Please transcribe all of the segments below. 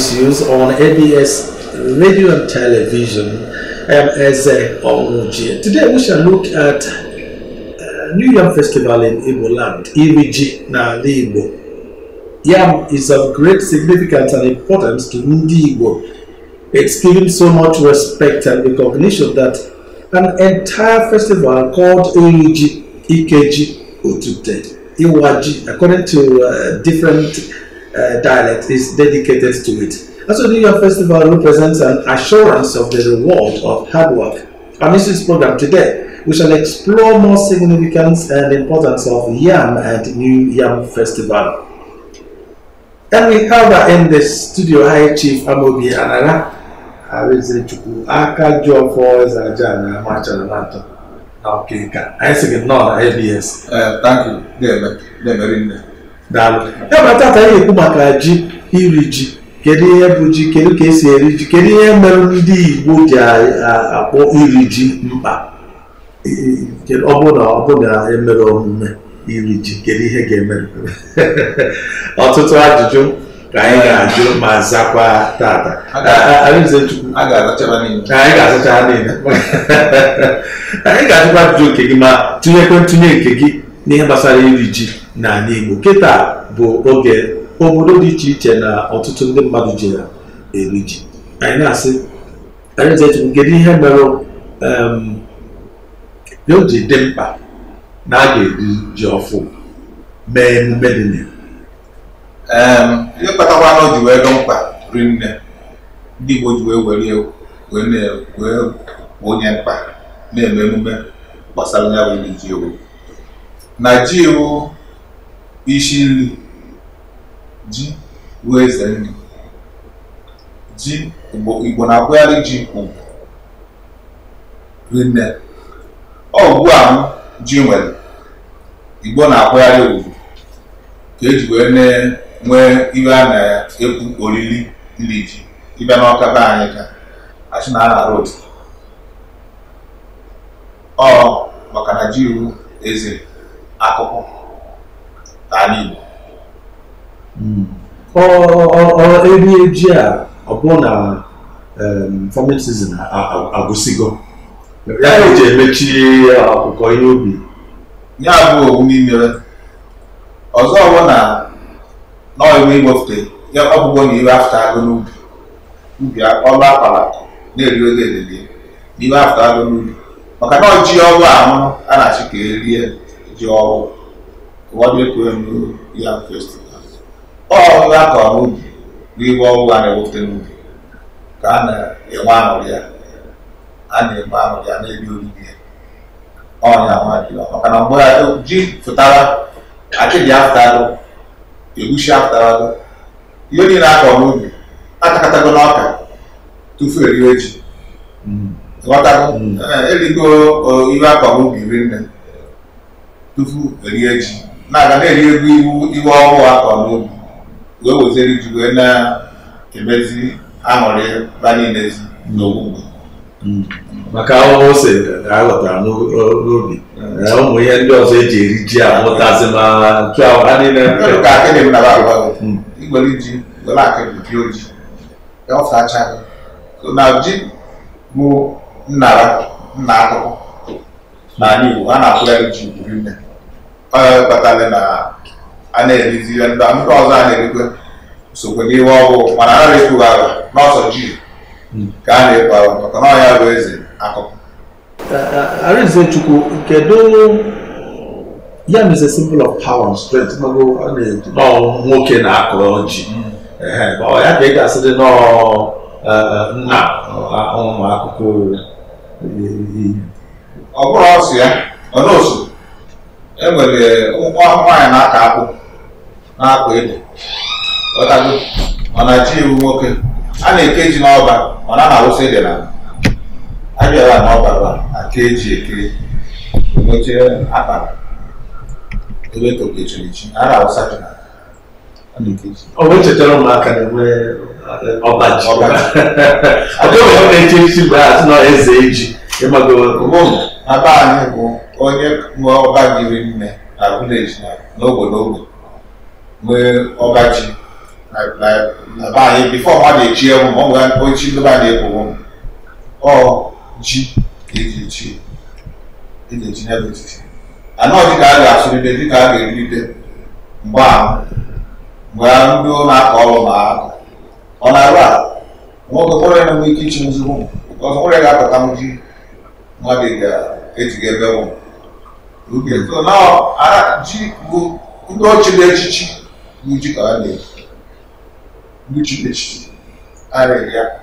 issues on ABS radio and television. I am Eze Today we shall look at uh, New Yam Festival in Igbo land, Iriji na Igbo. Yam is of great significance and importance to Ndi Igbo. It's given so much respect and recognition that an entire festival called Iriji, Ikeji, Otute, Iwaji, according to uh, different uh, dialect is dedicated to it. And so the Year Festival represents an assurance of the reward of hard work. And this is program today. We shall explore more significance and importance of Yam and New Yam Festival. And we have in the studio High Chief Amobi Anara. I Chukwu, aka ji I eze aja na amachara na atọ Okay, I Anyị sị gị nnọọ na ABS. Ee, tanki daalụ ya ma taata anyị ekwu maka ji iri ji kedu ihe bụ ji kedu ka esi eri ji kedu ihe mere ndị Igbo ji akpọ iri ji mkpa ọ bụ na ọ bụ na emere omume iri ji kedu ihe ga-emere ọtụtụ ajụjụ ka anyị ga-ajụ ma zakwa tata anyị ga-azụcha niile anyị ga-ajụkwa ajụjụ nke gị ma tụnyekwe ntụnye nke gị n'ihe gbasara iri ji n'ala Igbo kịta bụ oge obodo dị iche iche na ọtụtụ ndị mmadụ ji na eri ji anyị na-asị anyị zetu kedu ihe mere o ji dị mkpa na a ga-eri ji ọfụ mee emume dị na ihe kpatakwa na o ji wee dị mkpa rinne ndị Igbo ji wee were wee onye mkpa na-eme emume gbasara ya bụ iri ji obodo na ji wụ isi nri ji wụ eze nri ji igbo na-akwụgharị ji rinne ọ ugbu a m ji nwere igbo na-akwụgharị ugwu ka eji wee nee nwee ihe a na-ekwu oriri nri ji ịbịa n'ọka be anyị ka achị na ana road ọ maka na ji wụ eze akụkụ n'ala Igbo hmm. ọ ọ ọ erie eji a ọ bụ na um, farming season agụsigo ya eji emechi akụkọ ihe ubi ya bụ owu imere ọzọ ọbụ na n'ọgwụ igbofte ya ọbụgbo na iwe afta agụ n'ubi ubi ọrụ akwara na-eri oge elele n'iwe afta agụ n'ubi maka na ọjị ọrụ ahụ a na-achị ka erie your what make when you have festivals. All of that are movie. We all want to work the movie. Kana ewa anọrịa a na-eme anọrịa na-ebi oriri ya. Ọnya nwa dị maka na mgbe ji fụtara akịdị afụtarụ egusi afụtarụ ihe niile akọ n'ubi atakatago n'ọka tufu eriwe ji. Ghọtago erigo ihe akọ n'ubi rinne tupu erie ji na-aga na-eri ego iwu iwe ọhụụ akọ n'obi wee weziri ji wee na-emezi aṅụrị ba niile n'ogbugbo maka ahụhụ ose ka a ghọtara n'obi ụmụ ihe ndị ọzọ eji eri ji amụtazi ma ntu ahụ ha niile ka akịdị m naba agbago igbere ji were akịdị pịa oji ya ọfacha na ji bụ nnara nna akụkụ n'ala Igbo a na-akwụgharị ji buru nne onye kpatara na a na-erizi ihe ndị ndị ọzọ a na-erikwe sokwe n'ihe ọgwụ mana a na-ekwu ala n'ọsọ ji ka a na-ekwu ala maka na ọya bụ eze akụkụ Arinzechukwu kedu ya bụ symbol of power and strength nọọ nwoke na-akụrụ ji ya ka ị ga-asị dị nọọ nna ụmụ akụkụ ọ bụrụ ọsụ ya ọ na osu enwere ụmụ nwaanyị na-aka akpụ na-akpa ede ọtago ọ na-achị iwu nwoke a na-eke ji n'ọba ọ na na-awụsa ede na abịara n'ọbara aka eji eke enwechie akpara ebe tokechiri ji a na-awụsa ji na ọ bụ echetara ụmụaka na-enwe e, ọbaji ọ dịghị ọ na-eche isi bụ asị na eze eji ịmago na be anyị bụ onye nwe ọba gịrị nne na vileji na n'ogbe n'ogbe nwee ọba ji na be anyị bifọ mmadụ echi ewu ma ọ nwere ochi ndị ba na-ekwu m ọ ji eji echi eji echi n'ebe etiti anọọ dịka a ga-asụrịde dịka a ga-erite mgbe ahụ mgbe ndị ọ na-akọ ọrụ ma ọ na-arụ a nwoke kpọrọ ya na ike ichi nzugbu ọzọ kpọrọ ya ga-apụta m ji mmadụ ga-ejiga ebe ụmụ Okay, so now ara ji bụ ndị ọchịrị echichi bụ ji ka a na-eji ndị chiri echichi ya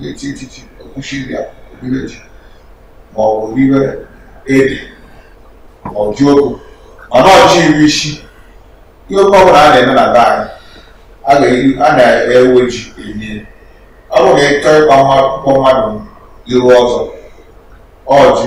na-eti etiti okwuchiri ya obere ji ma ọ bụ riwe ede ma ọ ji ogu mana ọchị iri isi ihe oke ọbụla a na-eme na be anyị e a na-ewe e ji enye ọ bụrụ na ịchọ ịkpa mmadụ iru ọzọ ọjị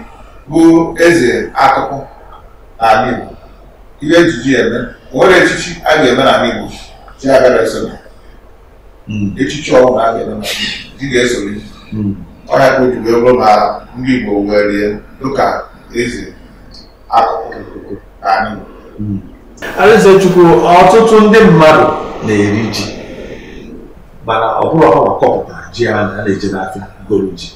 bụ eze akụkụ n'ala Igbo ihe ejiji eme nwere echichi a ga-eme n'ala Igbo chi agara esonye hmm. echichi ọbụla a ga-eme di ga-esonye hmm. ọnya ka o ji bụrụ na ndị Igbo wee rie, dịka eze akụkụ n'ala Igbo hmm. Alaeze Chukwu ọtụtụ ndị mmadụ na-eri ji mana ọ bụrụ ọha kọpụta kọpụtara ji a na-eji n'afịa goro ji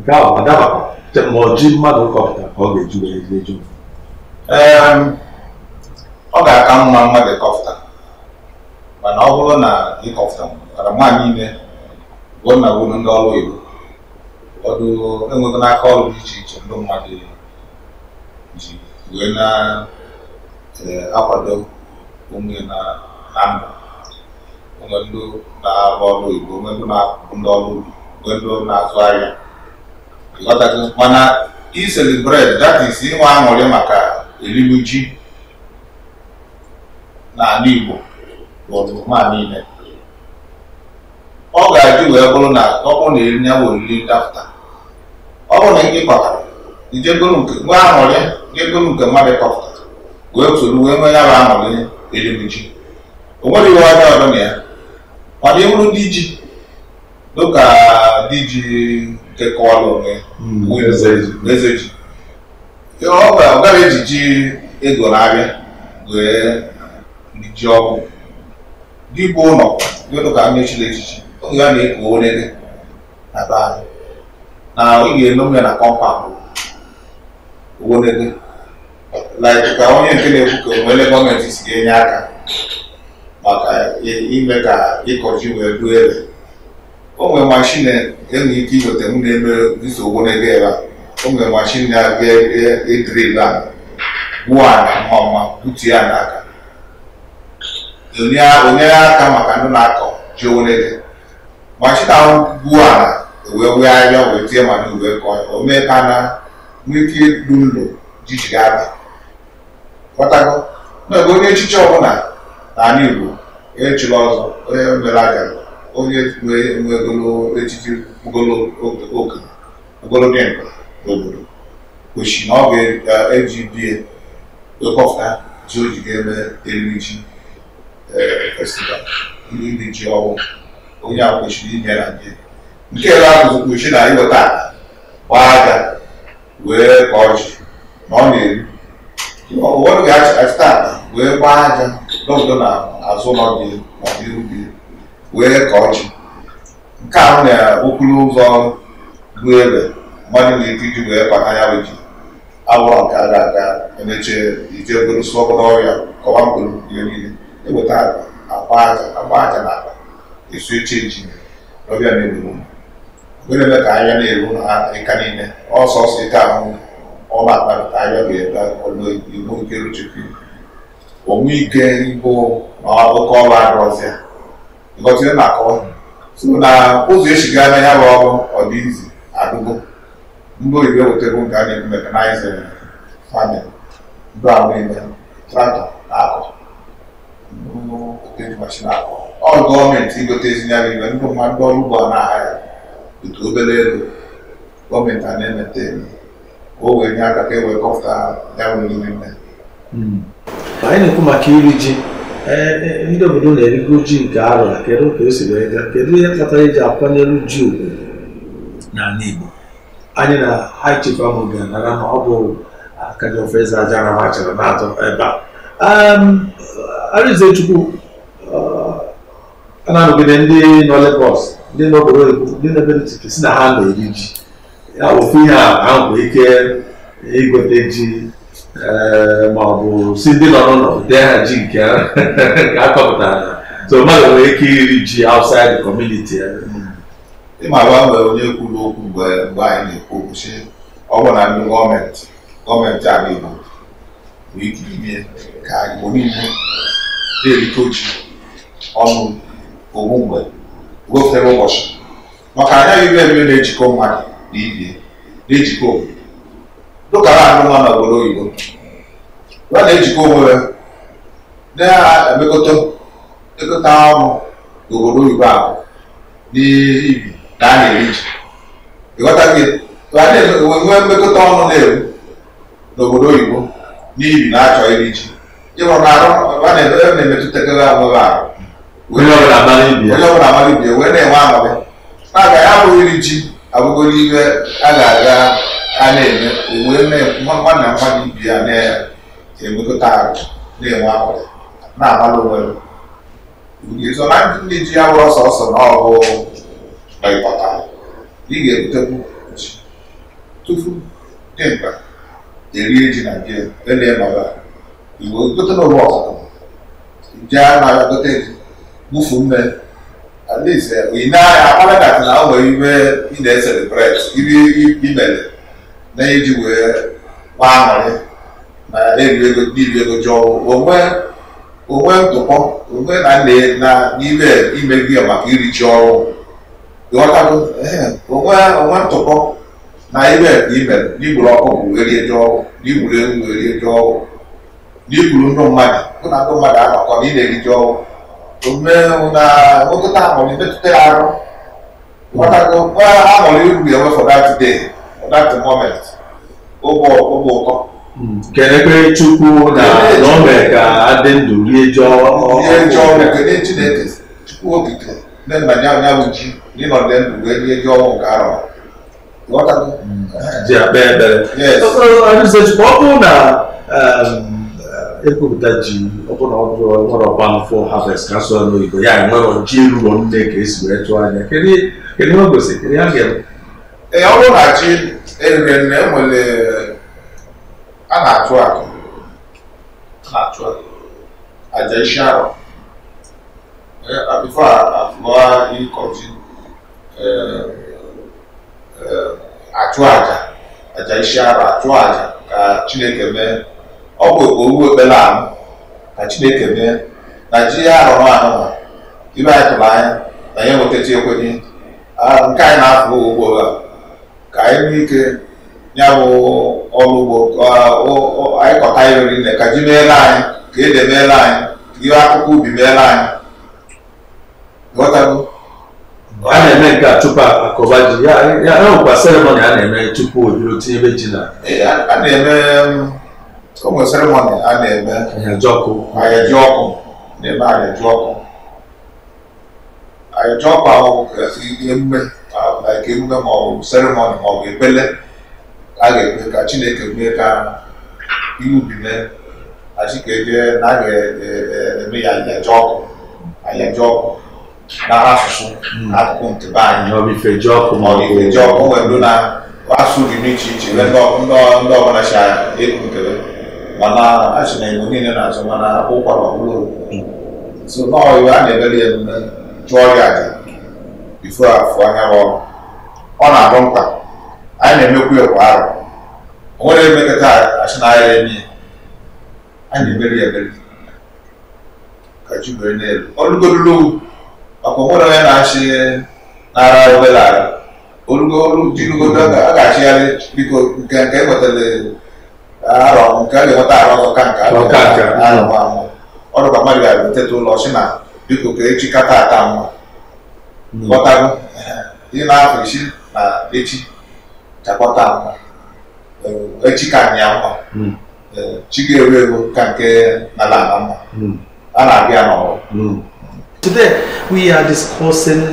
nke ahụ adabakwa ma ọ ji mmadụ kọpụta ka ọ ga-eju eju ehm, ọ ga-aka mma mmadụ kọpụta mana ọ bụrụ na ịkọpụta mara nwa niile gwuo na gwuru ndị ọrụ Igbo ụfọdụ enwego n'aka ọrụ dị iche iche ndị mmadụ ji wee na-akwado e, onwe na ndụ onwe ndị na-arụ ọrụ Igbo onwe ndị na-akwụ ndị ọrụ ubi onwe ndị na-azụ ahịa mana bred that is inwe aṅụrị maka erigbu ji n'ala Igbo ma niile ọ ga-adị wee bụrụ na ọ bụrụ na eri ya bụ oriri dafta ọ bụrụ na ndị kwatara ijegoro nke nwa aṅụrị jegoro nke mmadụ kọpụtara wee soro wee nwee ya bụ aṅụrị erigbu ji o nwere iwe ọjọọ ọdụ na ya mana ịbụrụ ndị ji dịka ka diji kekọwalụ ezeji ọ gaghị eji ego n'abịa wee ji ọkụ dibụ ụlọ dịdụ ka mmechiri echichi oge a na-eko onye na be anyị na ị ga-eno ya na kọmpaụnd owonede like ka onye nke na-ekwu ka onwere gọọmenti si ga-enye aka maka ime ka ịkọ wee duo ebe o e nwere mashin enwere ike inweta m na-eme nsogbu n'ebe ya o nwere mashin na-abịa edrila e, e gwuo ala mma mma butu ya n'aka onyere aka maka ndị na-akọ ji onwere mashin ahụ gwuo ala wee wegharịa wee tie mana wee kọọ o mee ka na nwee ike ilu ụlọ jijiri abịa. kpọtago na onye echiche ọbụla na ala Igbo echila ọzọ onye mere agara onye nwegolo echichi ogologo nka n'obodo kwesịrị na ọ ga-eji bie ekọfta ji o ji ga-eme eriri ji festival ndị ji ọwụ onye a kwesịrị inye na ndị nke ebe ahụ kwesịrị na iweta gbaa aja wee ka ọjị na ọ na-eri ụfọdụ ga-achịta wee gbaa aja n'obodo na azụ ụlọ dị na ndị ubi wee kọọ ji nke ahụ na okporo ụzọ bụ egbe mmadụ na ike iji wee kpata ya bụ ji abụrụ nke a ga-aga emeche ije bụrụ sụ ọkụ n'ọrịa kọwa mkpụrụ ihe niile eweta akpa aja agba aja na akpa esu eche ji ọbịa na-egbu ogere eme ka anya na-eru ha ịka niile ọsọsọ ịta ahụ ọba akpapụta anya ga-ebe ọlụ igbo nke ruchekwu onwe ike ịbụ na akụkọ ọrụ arụzịa ngọzi akọ ọnụ so na ụzọ esi gaa na ya bụ ọrụ ọdịizi agụgo ndị oyibo e wetego eh, nke a na-ekwu mekanaịza, famin ndụ ahụ niile traktọ na-akọ na akọ ọrụ gọọmenti igote ezinara ibe ndị mma ndị ọrụ ugbo a na-aha ya otu obere elu gọọmenti a na-emete eme ka o wee nye aka ka e wee kọpụta ya nwere ime hmm. anyị na-ekwu maka iri ji ndị obodo na-erigo ji nke arọ kedu ka o si wee gaa kedu ihe kpatara eji akwanyere ji ugwu n'ala Igbo anyị na high chief ahụ ga-anara na ọ bụ akajiọfọ eze aja na ha chọrọ na-atọ ebe a Arịzechukwu eh, ehm, a na-anọgide ndị nọ Lagos ndị nọ obodo ndị na-ebe ntụtụ si na ha na-eri ji ya ofu ihe a ahụ ike igote ji ma ọ bụ si ndị nọ n'ụlọ dee ha ji nke akọpụtara so mmadụ nwere ike iri ji outside the community ịma agba nwere onye kwuru okwu mgbe mgbe anyị na-ekwu okwu si ọ bụ na ndị gọọmenti gọọmenti ala igbo bụ ike ime ka igbo niile na-erite oji ọnụ ogbu mgbe gofere ụbọchị maka anya ibe ebe na-ejikọ mmadụ na ibie na-ejikọ obodo dụkara anụ nwa n'obodo oyibo ọ na-ejikọ onwe ya na-emekọta ekọta ọnụ n'obodo oyibo ahụ n'ibi na a na-eri ji ịghọta gị nwee mmekọta ọnụ na-eru n'obodo oyibo n'ibi na-achọ iri ji ịhụrụ na arụ a na-emetụtakere ahụ ahụ onye ọbụla amara ibi wee na-enwe amabị na ya abụghị iri ji abụgoro ibe a ga-aga a na-eme owee nwanna mmadụ ibi ya na ya ga-enwekọta ahụ na-enwe akwụkwọ na-agbala onwe ga-ezo na ndị ji ya wụrụ sọsọ na ọgụ ịkpọta ị ga-ebutekwu ji tupu dị mkpa erie ji na nke ele nọra iwe gote n'ụlọ ọkụkọ ji a na gote ji bufu mme at least ị na-anya akpara na na o nwere ibe ị na-eselebreti ibe imere na iji wee gbaa aṅụrị na dibịa ego jụọ onwe ntụpọ onwe na nne na n'ime ime gị maka iri ji ọrụ onwe ntụpọ na ime ka n'igburu ọkụ bụ erie ji ọrụ n'igburu ewu bụ erie ji n'igburu ndụ mmadụ mụ na ndụ mmadụ anọkọ na ị na-eri ọrụ omume na nwekọta aṅụrị metụta ya arụ ghọtago aṅụrị iru ya nwefọ that day that moment ụtọ kenekwe chukwu na n'ome ka adị ndụ rie ji ọnwụ kene chineke chukwu okike ndị nna ya anya bụ ji n'ịnọdụ ndụ wee rie ji nke arọ ji akpa ebere ọ bụrụ na um, ekwupụta ji ọbụna ọ bụrụ nwere ọgba mfọ harvest ka sụọ n'oyibo ya enwere ji ruo nne ka esi wee tụọ anya kedu ọ gosi kedu ya ga-eme ee ọ bụrụ na ji eriri nne enwere a na-achụ àjà àjà isi arọ eh, before afụwa ịkọji eh, eh, atụ àjà àjà isi arọ achụ àjà ka Chineke mee ọ bụ owu ekpere ahụ ka Chineke mee na ji ya arọrọ ahụ ibe anyị tụrụ anya na ya enwetacha ekwenye ah, nke anyị na-afụ ugbo a ka anyị nwee ike ya bụ ọrụ ugbo anyị kọta ya oriri na ka ji meela anyị ka ede meela anyị ka ihe akụkọ ubi meela anyị ghọtago a na-eme nke a tupu akọba ji ya nwekwa seremoni a na-eme tupu o biro tinyebe ji na e, a na-eme ụmụ um, seremoni a na-eme ahaji ọkụ ahaji ọkụ na-eme ahaji ọkụ ahaji ọkụ ahụ e, e, emume ma ọ bụ seremoni ma ọ bụ ekpele a ga-ekwe ka Chineke mee ka iwu ubi mee achikeke na a ga-eme ya ayaja ọkụ ayaja ọkụ n'aha asụsụ hmm. akụkụ ntebe anyị ifeji ọkụ nwere ndụ na-asụ dị n'iche iche ndị ọbụla si ekwu nkebe mana achị na igbo niile na-azụ mana ụkwa ma bụrụ so n'iwe a na-emere ya emume chụọ ya aja ifo afọ anya ọrụ ọ na-abụ mkpa anyị na-emekwa ya kwa ahụ o nwere achị na ahịa eme anyị na-emeri ya emeri ka chi wee n'elu elu maka onwere onye na-achị n'ara obere ara olugo jirugodo a ga-achịgharị biko nke nke enwetara arọ nke a ga-enweta arụ ọzọ ka nke arọ ọrụ mmadụ ga-eteta ụlọ na biko ka echi kata ata mma ghọtago isi na echi chakpọta nwa echi ka anyị akwa chi ga egwu ewu ka nke n'ala ala mma a na-abịa n'ọrụ Today we are discussing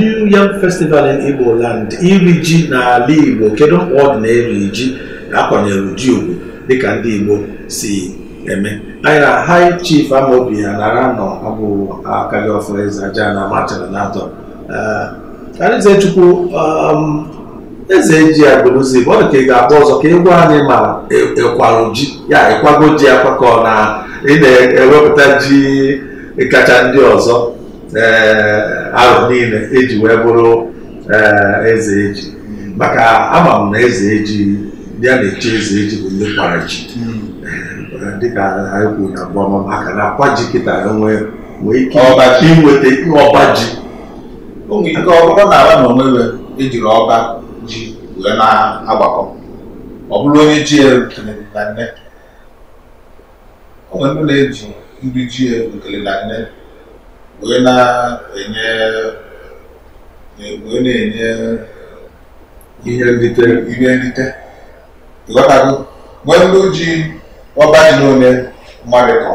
New Yam Festival in Igbo land iri ji n'ala Igbo kedu mkpa ọ dị na-eri ji akwanyere ji ugwu dịka ndị Igbo si eme anyị na Chief Amobi Anara nọ abụ akagị ọfọ eze aja na machara na atọ eh, Chukwu um, eze ji ya bụrụzi ọ ka ị ga akpọ ọzọ ka ịgwa anyị ma ịkwarụ e, e ji ya ịkwago ji ya kwakọ na ị na-ewepụta ji kacha ndị ọzọ eh, ahụ niile eji wee bụrụ eh, eze eji maka ama m na eze eji ya na-eche eze eji bụ ndị kwara ji eh, dịka anyị kwuru na mbọma maka na akwa ji kịta nwee ike inweta ọba ji ọ na-ara na onwe ejiri ọba ji wee na-agbakọ ọ bụrụ onye ji ekele na nne o nwere ndị na-eji nri ji ekele na nne wee na-enye wee na-enye ihe nrite ihe nrite ịghọtago nwee ndị ji ọba ji n'one mmadụ kọrọ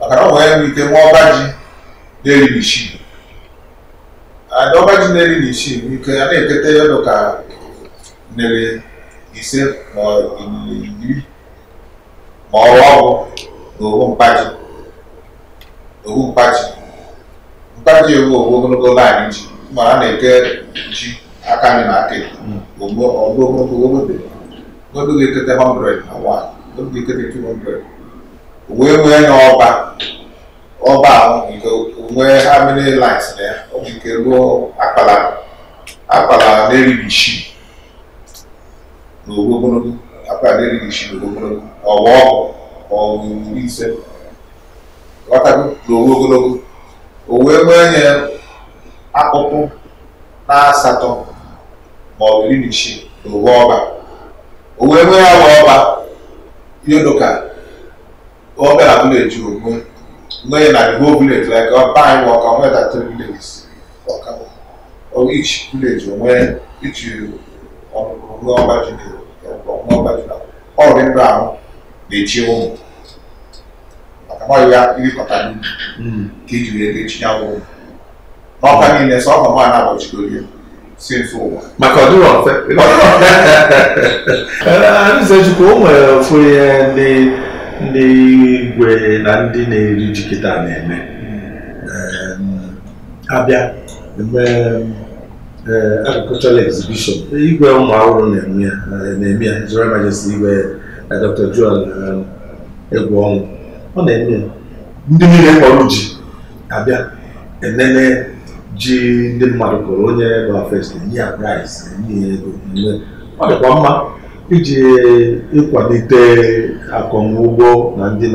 maka na ọ nwere ike nwa ọba ji na-eribichi adọbaji neri na isii nke ya na-eketa ya dụka neri ise ma iri ma ọrụ ọgwụ na owu mkpaji owu mkpaji mkpaji ewu owu ogologo laịn ji ma a na-eke ji aka anyị na aka ọdụ ogologo ogologo oge ga-ekete 100 na 1 oge ga-ekete 200 wee nwee ya ọba ọba ahụ nke where how many lines there? O ji ka ruo akpala akpala na-erighị isi n'ogbe ogologo akpala na-erighị isi n'ogbe ogologo ọwa ọgwụ ọgwụ do ise ghọtago n'ogbe ogologo o wee nwee nye akpụkpụ na asatọ ma ọ bụ iri na isii n'ogbe ọba o wee nwee awa ọba ihe dịka ọbịa abụla eji ogbe knowing that the whole village, like Oban work on where that three villages work out. Or each village, or where each you uh, on Oba Junior, or Oba Junior, all in ground, they chill home. Àkàmọ́ ìwé ìkọ̀tà ní kejì rẹ̀ lè ṣí àwọn ohun. Ọkọ̀ ní ilẹ̀ sọ́kọ̀ mọ́ àná àbọ̀jù lórí ẹ̀ sí efu ụwa. Maka ọdụrụ ọfe. Ọdụrụ ọfe. Ndị Zechukwu, o nwere ndị igwe na ndị na-eri ji na-eme abịa eme agricultural exhibition igwe ụmụ ahụhụ na-eme na-eme ya His Majesty igwe eh, Dr. Joel egwu ọnwụ ọ na-eme ndị niile kpọrọ ji abịa enene ji ndị mmadụ kụrụ onye bụ first enye ya prize enye ya ego ọ dịkwa mma iji ịkwalite akọmugbo na ndị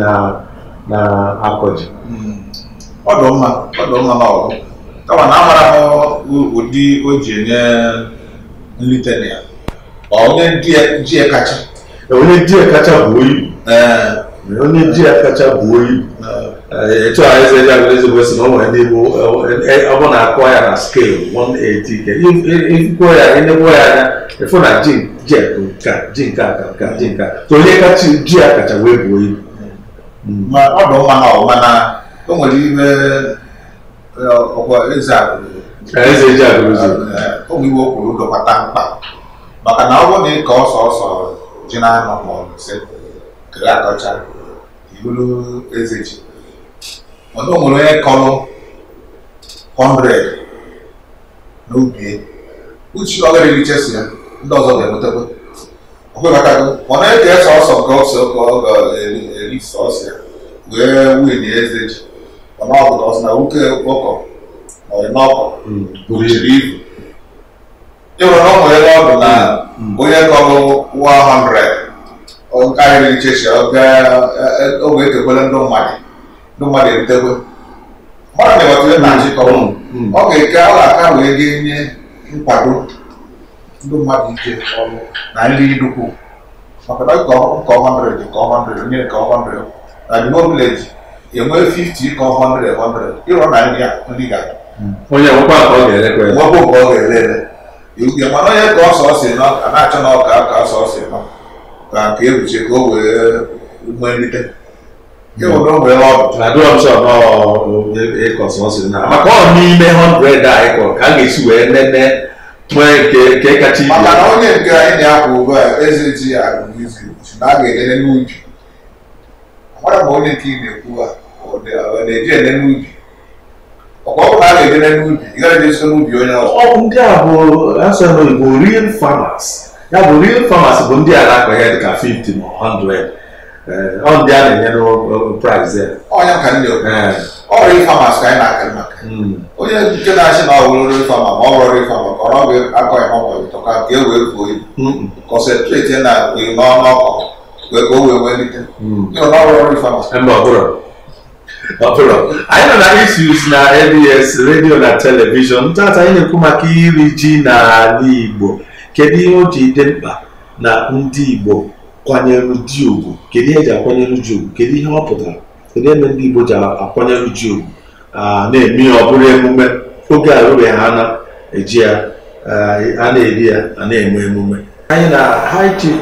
na-akọ ji hmm. ọ dị mma ọ dị mma n'ọgụ kama na amara m ụdị o ji enye nlite na ya onye ji ya kacha e, onye ji ya kacha bụ oyi e, onye ji ya kacha bụ oyi e, etu a eze ji agụrụ ezigbo si na o nwere n'igbo ọ na akụọ ya na skelu 180 ikwuo ya enegbuo ya anya ịfụ na ji ji nke a ji nke a ka nke a ji a ka onye ji wee buo ibu ma eh, eh, eh, ọ bụ mma na ọma na o nwere ime ọkwa eze eze ji agụrụzi ụmụ iwe kwuru dọkpata mkpa maka na ọ bụrụ na ịka ọsọ ọsọ ji na-anọ ma ọ sị kere akọcha ibulu eze ji mana o nwere onye kọrọ 100 n'ubi uchi ọ gara ya ndị ọzọ ga-enwetakwa okwe maka ọ na-eke sọsọ nke ọsọ ka ọ ga-eri sọsọ ya wee win eze ji mana ọ bụla ọsọ na nwoke ọkọ ọrịnọkọ hmm, bụchiri ibu ịhụrụ na ọ nwere ebe ọ bụ na hmm. onye kọrọ 100 karịrị ichechi ọ ga-ekekwele e, ndị mmadụ ndị mmadụ eritekwe. mmadụ na-ewetụle na nchịkọ hmm, ọ ga-eke ọ ga-aka wee ga-enye nkwado ndị mmadụ ije ọrụ na nri nnukwu maka na nke 100 nke 100 onye nke 100 na bimo village enwe 50 nke 100 100 ịrọ na nri nri ga onye nwekwa nke ọ ga-erekwe nwekwa nke ọ ga-erere ihe mana onye ka ọsọ si nọ a na-achọ na ọka ka ọsọ si nọ ka nke ebuche ka o wee nwee nrite ịhụrụ onwere ọdụ maka ọ n'ime 100 a ịkọrọ ka a ga-esi wee nene nwere nke kacha ibe maka na onye nke anyị na-akwụ ugbu a eze ji ya agụmizi na a ga-elele n'ubi amara ma onye nke ị na-ekwu a na-eji n'ubi ọkwa ọbụla a ga n'ubi ị gaghị n'ubi onye ọ bụ ndị a bụ asọ n'oyibo real farmers ya bụ real farmers bụ ndị a na-akọ ihe dịka 50 ma 100 eh, a na-enye n'ụlọ price ya Ọ ọrụ ịfama ka anyị na-akị maka onye nke na-achị na nri ịfama ma ọ bụrụ ịfama ka ọ bụ akọ ya ọkọ ka e wee buo ibu kọnsentreti na iri n'ọnụ ọkọ wee ka o wee welite ọrụ ịfama ọbụrụ anyị nọ na issues na abs redio na telivishọn tata anyị na-ekwu maka iri ji n'ala igbo kedu ihe o ji dị mkpa na ndị igbo kwanyere ji ugwu kedu ihe eji akwanyere ji ugwu kedu ihe ọ pụtara n'eme ebe ndị Igbo ji akwanyere uju na-eme ya ọ bụrụ emume oge arụbeghị ha na-eji ya a na-eri ya a na-eme emume anyị na high chief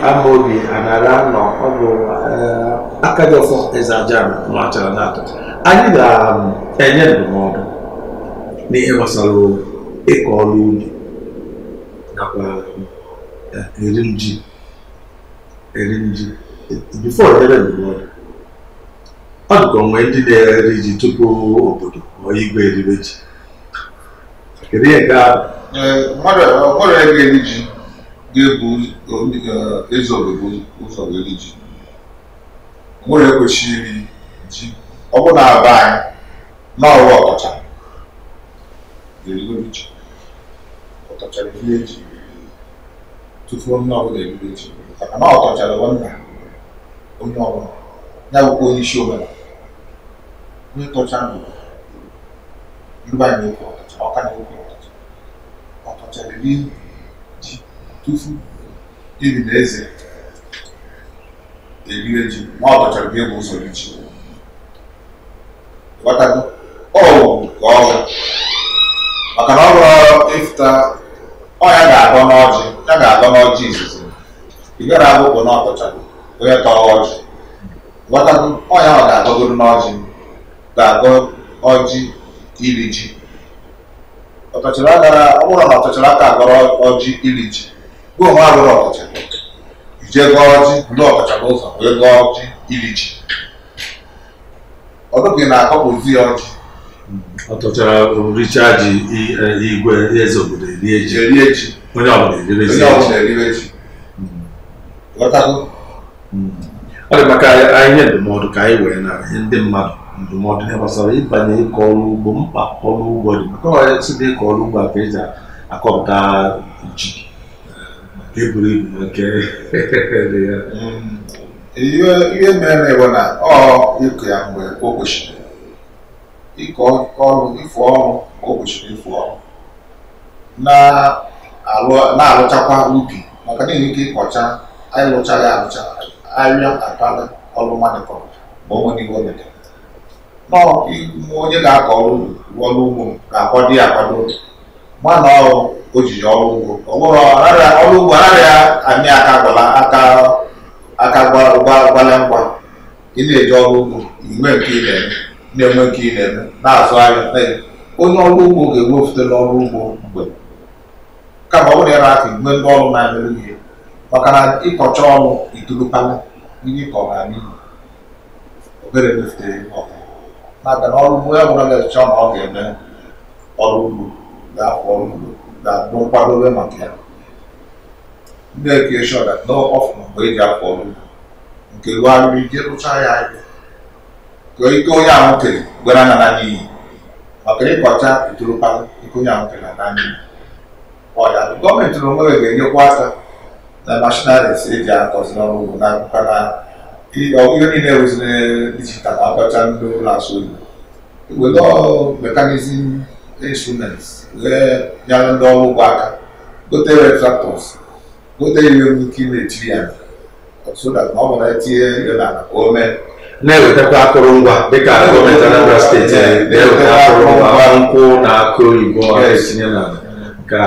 anara nọ ọ bụ eh, aka gị eze machara na anyị ga-enye ndụmọdụ n'ihe gbasara ịkọ ọrụ ubi nakwa eh, eri nji eri nji bifo ndụmọdụ ọ dịka onwe ndị na-eri ji tupu obodo ma igwe eribe ji kedu ihe ga ọrụ ya ga-eri ji ga-ebu eze obodo ụzọ ga-eri ji nwere ekwesịghị iri ji ọ bụ na-aba anyị n'ọrụ ọkacha erigoro ji ọkachara ihe eji tufuo onye ọbụla erigoro ji maka na ọkọchara nwanna onye ọbụla ya bụkwa onye isi omenala n'ịtọcha ndụrụ ndị anyị ọka na ofe ọtọcha ọtọcha ji tufu ili na eze eriwe ji nwa ọtọcha bụ egwu ụzọ ri ji ghọtago ọwụ maka na ọrụ ịfụta ọ ya ga-adọ n'ọjị ya ga-adọ n'ọjị izizi ị gara akwụkwọ na onye tọọ ọjị ọ ya ọ ga ga-agọ ọjị iri ji ọtọchịrị agara ọ bụrụ na ọtọchịrị aka agọrọ ọjị iri ji gị onwe agụrụ ọtọcha ije gọọ ọjị ndị ọtọcha n'ụzọ wee gọọ ọjị iri ji ọdụgị na-akọpụzi ya ọjị ọtọchara richaa ji igwe eze obodo erie ji erie ji onye ọbụla eribe ji e ọ dị maka ihe ndụmọdụ ka anyị wee na ihe ndị mmadụ ndụmọdụ hmm. ya gbasara ịbanye ịkọ ọrụ ugbo mkpa ọrụ ugbo dị maka ọrụ ọya site ịkọ ọrụ ugbo a ka eji akọpụta ji nke buru ibu nke dị ya ihe mere bụ na ọ ịkụ ya mgbe o kwesịrị ịkọ ọrụ ịfụ ọrụ o kwesịrị ịfụ ọrụ na-alụchakwa ubi maka na ike ịkọcha anyị lụchaghị alụcha ahịa akala ọrụ mmadụ kọrọ ma o nwere ihe o metere onye ga-akọ ọrụ ọrụ ugbo ga-akwado ya akwado mana o jiri ọrụ ugbo ọrịa ọrụ ugbo anaghị amị aka gwala aka aka gwala ngwa ị na-eji ọrụ ugbo inwe nke ị na-eme na-enwe nke ị na-eme na-azụ ahịa onye ọrụ ugbo ga-enwefute n'ọrụ ugbo mgbe kama ọ bụrụ ya na-aka igwe ndị ọrụ na-emere ihe maka na ịkọcha ọrụ itulupala ihe ịkọ na obere mefutere maka na ọrụ onye ọbụla na-echọ na ọ ga-eme ọrụ ugbo ga-afọ ọrụ ugbo ga-abụ nkwadobe maka ya ndị eke ekeshọn na ọfụma mgbe eji afọ ọrụ ugbo nke gharịrị ije rụchaa ya ahịa ka ike onye ahụ kere gwara na na n'iyi maka ịkọcha itoropala ike onye ahụ kere na n'iyi ọya gọọmenti na onwe ga-enyekwa aka na mashinarịs eji akọzi n'ọrụ ugbo na akụkọ n'ahụ ihe niile wụziri dijitalụ abacha ndị ụlọ asụ oyibo were mekanizm instruments wee nyere ndị ọrụ ugbo aka gote retractors gote ihe nwere ike na-etiri ya so that na ọ bụrụ etinye ihe n'ala na o mee na-ewetakwa akụrụngwa dịka gọọmenti nkwụ na akụ oyibo etinye ka na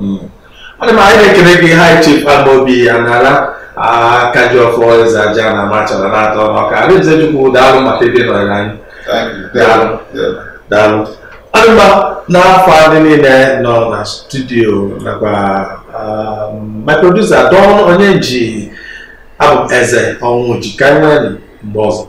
m anyị na-ekele gị hai chief Amobi aka ji ọfọ eze aja na amachara na-atọ ọnụọka alaeze chukwu daalụ maka ebe nọrọ anyị daalụ adịma n'afọ ndị niile nọ na studio nakwa my producer don onye ji abụ ah, eze ọnwụ ji ka anyị mgbe ọzọ